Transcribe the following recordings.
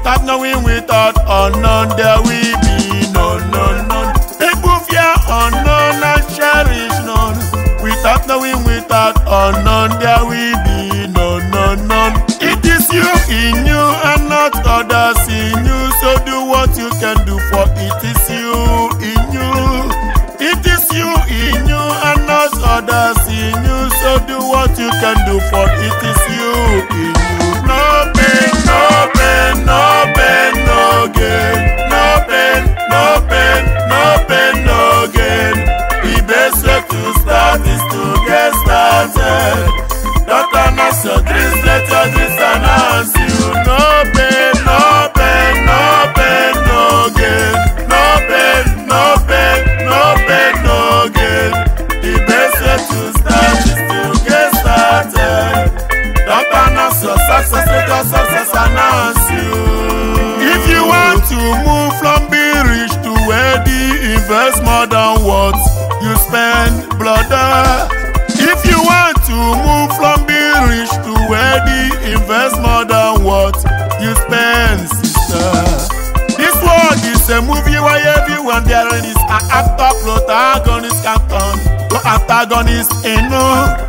without knowing without unknown oh, there will be no no no. People fear unknown oh, and cherish none. Without knowing without unknown oh, there will be no no no. It is you in you and not others in you. So do what you can do for it is you in you. It is you in you and not others in you. So do what you can do for it is you in you. success, greater success announce you. If you want to move from being rich to wealthy, invest more than what you spend, brother. If you want to move from being rich to wealthy, invest more than what you spend, sister. This world is a movie where everyone there is an actor, protagonist, captain, no antagonist, you know.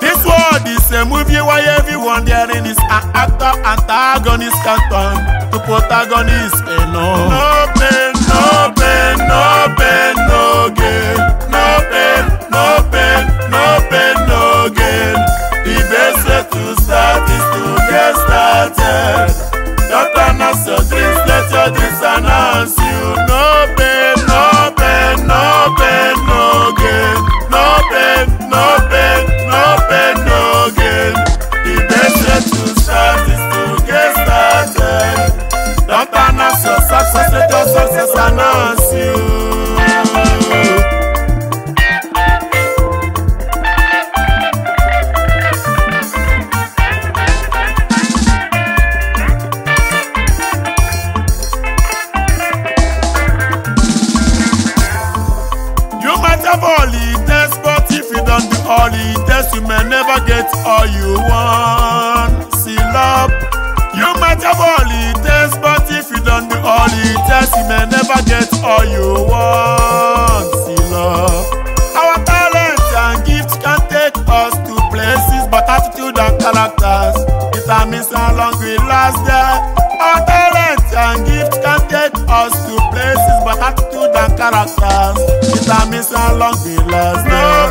This world is a movie where antagonist canton to protagonist eno. Eh, no. Yes, you may never get all you want. See love. You might have all it takes, but if you don't do all it takes, you may never get all you want. See love. Our talent and gifts can take us to places, but attitude and characters determines how long we last there. Our talent and gifts can take us to places, but attitude and characters determines how long we last there.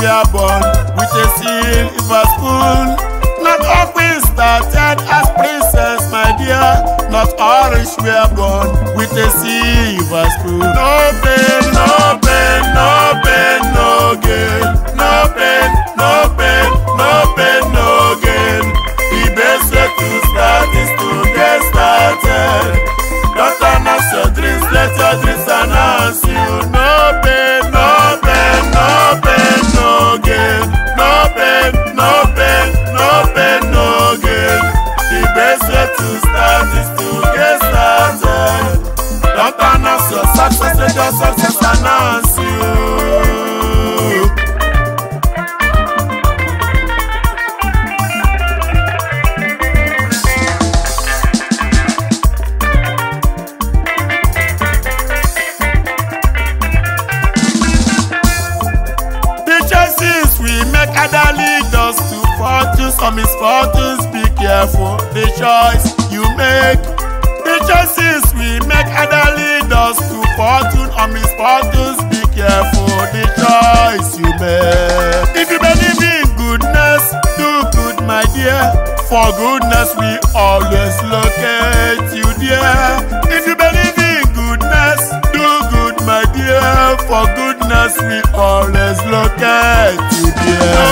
we are born with a silver spoon. Not all we started as princess, my dear. Not all rich we are born with a silver we make other leaders to fortune or misfortunes. Be careful the choice you make. The choices we make other leaders to fortune or misfortunes. Be careful the choice you make. If you believe in goodness, do good, my dear. For goodness, we always locate you, dear. If you believe in goodness, do good, my dear. For goodness, we always no get you there.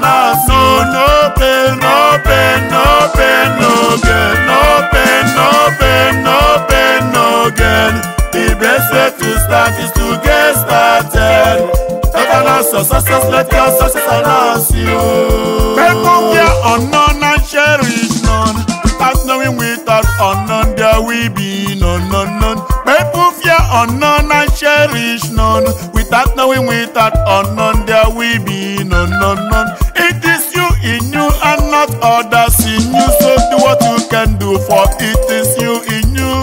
balance. No, no pain, no pain, no pain, no gain. No pain, no pain, no pain, no gain. The best way to start is to get started. Take an answer, success, let your success announce you. People here unknown and cherish none. As knowing without unknown, there will be none, none, none. People fear unknown and cherish none. going without unknown, there will be no, no, no. It is you in you and not others in you. So do what you can do, for it is you in you.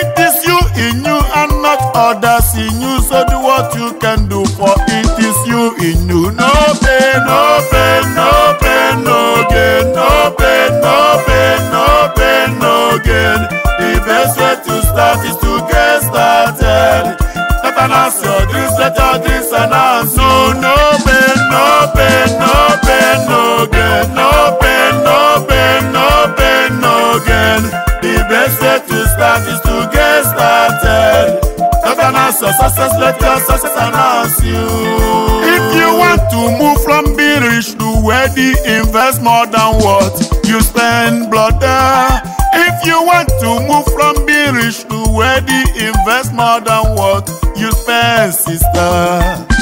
It is you in you and not others in you. So do what you can do, for it is you in you. No pain, no pain, no pain, no gain. No pain, no pain, no pain, no gain. The best way to start is to get started. Not an answer. no pain, no gain. No pain, no no pain, no gain. The best way to start is to get started. your success, let your success announce you. If you want to move from being rich to wealthy, invest more than what you spend, brother. If you want to move from being rich to wealthy, invest more than what you spend, sister.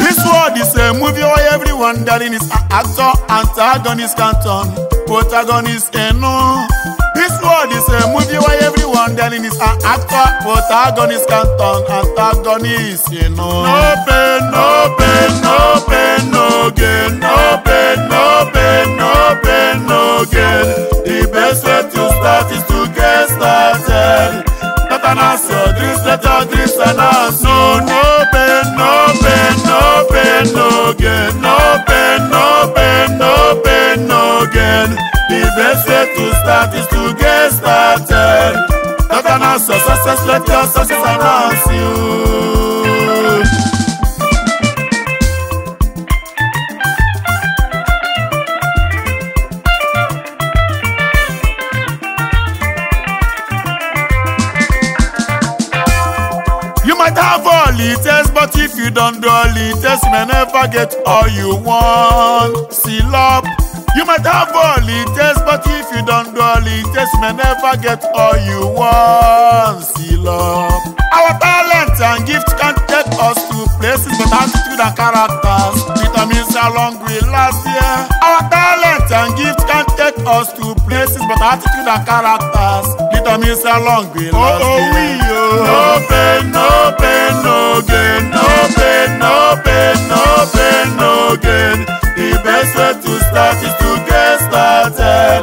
This world is a movie or every darling is an actor, antagonist can turn protagonist and eh, no. This world is a movie where everyone darling is an actor, protagonist can turn antagonist, you eh, know. No pain, no pain, no pain, no gain. No pain, no pain, no pain, no gain. The best way to start is to get started. Not an answer, dreams, let your dreams and answer. No, no. again, no pain, no pain, no pain, no gain. The best way to start is to get started. Not an success, let us get all you want. Seal up. You might have all it takes, but if you don't do all it takes, you may never get all you want. Seal up. Our talents and gifts can take us to places, but attitude and characters determines how long we last. year. Our talents and gifts can take us to places, but attitude and characters determines how long we last. Oh, oh, we, oh. No pain, no pain, no gain, no pain, no pain, no pain end no gain. The best way to start is to get started.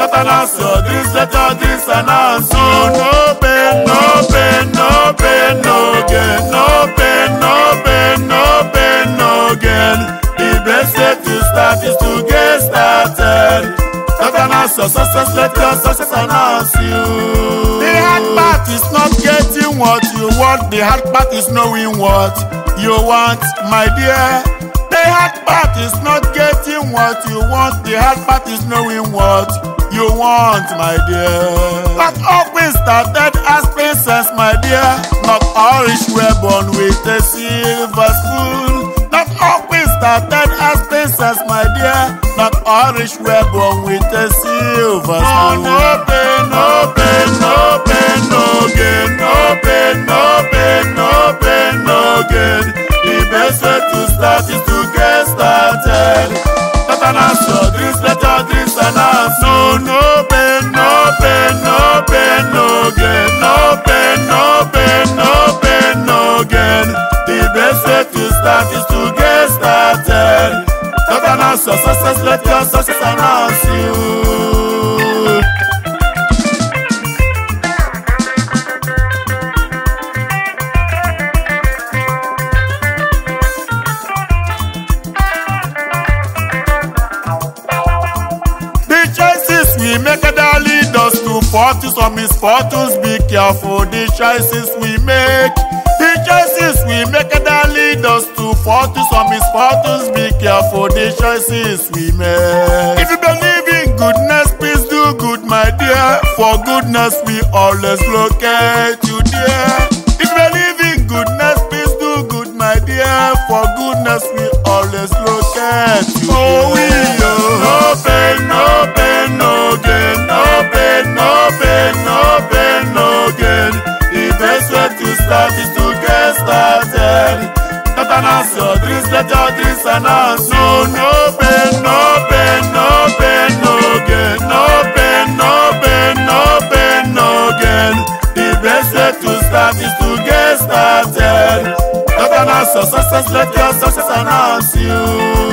Not an answer. This letter, this an answer. No pain, no pain, no pain, no gain. No pain, no pain, no pain, no gain. The best way to start is to get started. Not an answer. success, letter, success announce you. The hard part is not getting what you want. The hard part is knowing what you want, my dear. That part is not getting what you want. The hard part is knowing what you want, my dear. Not always started as princess, my dear. Not all rich were born with a silver spoon. Not always started as princess, my dear. Not all rich were born with a silver spoon. No, no pain, no pain, no pain, no gain. No pain, no pain, no pain, no gain. The best way to start is to get started. fortunes or misfortunes, be careful the choices we make. The choices we make that lead us to fortunes or misfortunes, be careful the choices we make. If you believe in goodness, please do good, my dear. For goodness, we always locate you, dear. If you believe in goodness, please do good, my dear. For goodness, we always locate you. Dear. Oh, we, oh, no pain, no open, open again. The best way to start is to get started. Not an your dreams, let your dreams announce. open, open, open again. The best way to start is to get started. Not an answer. success, let your success announce you.